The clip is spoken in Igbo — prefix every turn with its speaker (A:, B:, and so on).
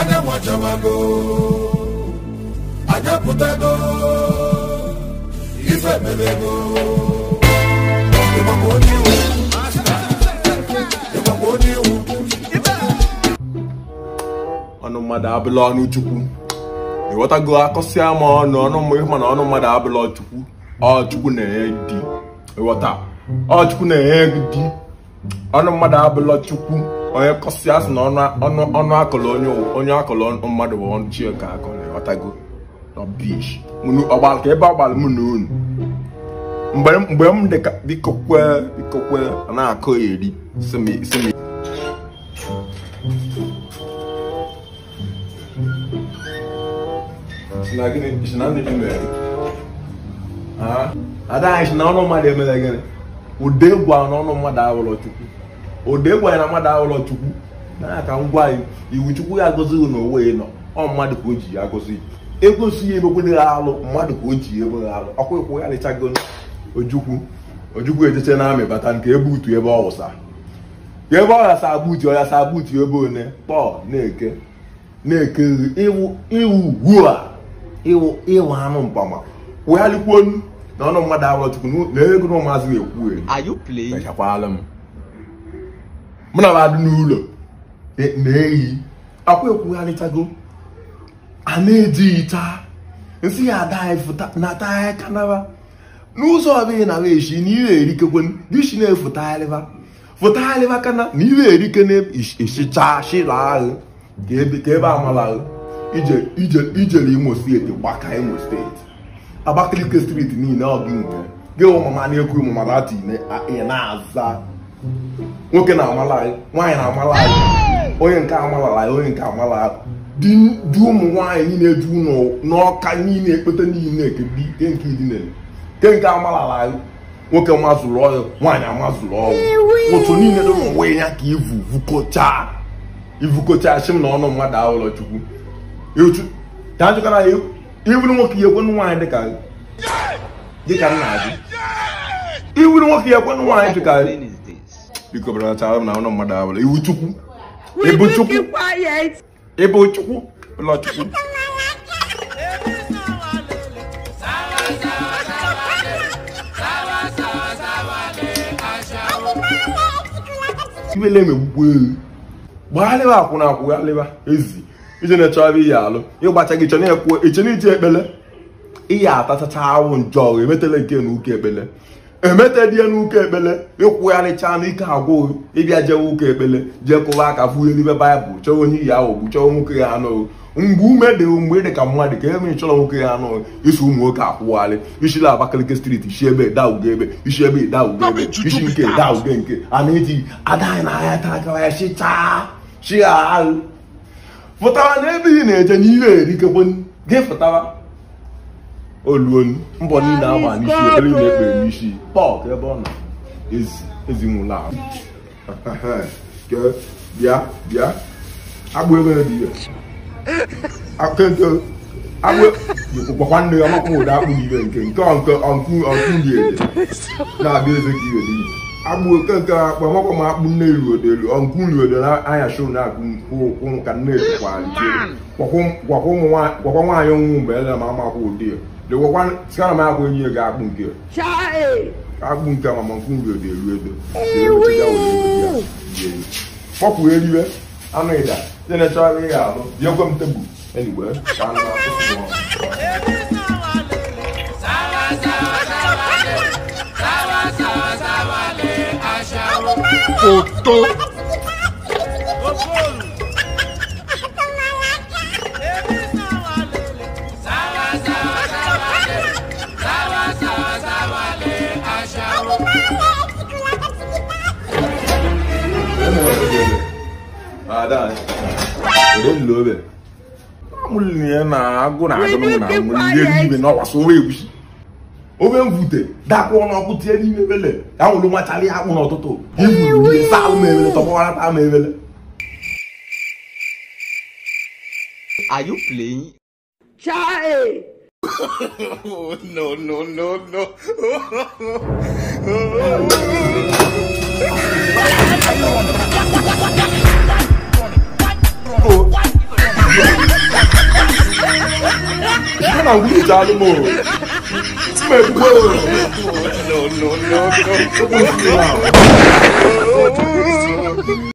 A: anya nwachabago anya pụtago ife mebego ịgbakwa onye iwu ịgbakwa onye iwu ọnụ mmadụ abụla ọnụ chukwu ịghọtago akọsịa ma ọnụ ọnụ mmụọ mana ọnụ mmadụ abụla chukwu ọchukwu na-enye dị ịghọta ọchukwu na-enye ọnụ mmadụ abụla chukwu onye kọsi asị na ọnụ onye akụlụ mmadụ bụ ọnụ Chioke akụlụ ọtago ọgbara ka ebe ọgbara m na unu mgbe m ka biko biko na-akụ eri simi ada anyị si na ọnụ mmadụ emere gịnị ụdị egwu mmadụ awụrụ chukwu ode gwanye na mmadụ ahụlọ chukwu na ka ngwa anyị iwu chukwu ya agọzi na onwe nọ ọ mmadụ ka o ji ya agọzi ego si ya emekwere ha alụ mmadụ ka o ji ya emeghe alụ ọkwa ịkwụ ya lịchago ojukwu ojukwu ejeche na amị bata nke ebe utu ebe ọwụsa wụsa ebe ọ ghasa agbutu ọ ghasa agbutu ebe one kpọọ na-eke na-eke iwu iwu a iwu ịwụ anụ mpama wegharịkwuo na ọnụ mmadụ ahụlọ chukwu na ego na ụmụazị na-ekwu ewu chakwala m mụ e, e e na m adị n'ụlọ na-eyi akwa ekwugharịtago a na-ejighị taa nsị ya adnata kanaba n'ụzọ ọbụla na weshi na ihe erikekwe bishi na-efụtagharịba fụtagharịba kana na ihe erike na-esicha shilahụ ka ebe amalahụ ijere imo steeti gbaka imo steeti abakaliki steeti niile ọgị nke gị ụmụma na-ekwu ụmụmara atụ ị na-aza nwoke na-amala anyị nwaanyị na-amala onye nke amala anyị onye nke amala di ụmụ nwaanyị niile ju ụlọ n'ọka niile ekpete niile ke nke amala anyị nwoke mazụrụ ọyụ nwaanyị amazụrụ ọyụ otu niile dị ya ka na ọnụ mmadụ ka a iwuru nwoke ya ekwenụ nwaanyị dịka nna iwuru nwoke ya biko belatara m na ụlọ mmadụ abụla iwu chukwu ịbụ chukwu ịbụ chukwu ụlọ chukwu iwele m egbugbo ewu gbagharịba akwụna akwụgharịba ezi ije na-echọrọ gị awụ emetela nke na ekpele emetadie n'ụka ekpele ịkwụgharịcha n'ike agwụ ịbịa jewe ụka ekpele jee kụwa aka ihe n'ime baịbụl chọọ onye iyi ahụ bụ chọọ nwoke ya anụ mgbe ume dị mgbe ị dị ka mmadụ ka ebe chọrọ nwoke ya anụ isi ụmụ nwoke akwụgharị isi la abakaliki striti isi ebe daugo ebe isi ebe daugo ebe isi nke daugo nke a na-eji adanyị ya takara chịchaa chi ahụ pụtara na ebe ị na-eje n'ihe erikekwe gị pụtara oluolu mbọ niile agba n'isi ebe niile ekpere n'isi ka ebe ọ na ezinwụla ahụ bịa bịa agbụ ebe dị ya akụkọ agbụ gwakwa nne ya ọmakwa ụda akpụ n'ibe nke nke ọnkụ ọnkụ ọnkụ dị ele na-abịa eze ka iwe n'ihe agbụ oke nke akpụ ọmakwa ma akpụ nne ruodelu ọnkụ ruodelu anya shụ na-akpụ ụkwụ ka nne ejikwara gwakwa nwaanyị ọnwụ mgbe ele ma amakwa ụdị ya sikana m agba enyi ga akpụ nke akpụ nke amamankwụ nri e dị eru edo kpọpụ eriwe anụ ịda e ndị na-echọrọ ya ahụ bịakwe m tebụl enyiwe ka anụ na-atụ foto Ada. Ore nlo be. Amulie na agụ na dakwa ọnụ ọkụ tie n'ime ebele. Ya nwụrụ nwachara ya akpụ n'ụtụtụ. Iwu ma ebele. oh, no, no, no, no. You're not weird, No, no, no, no.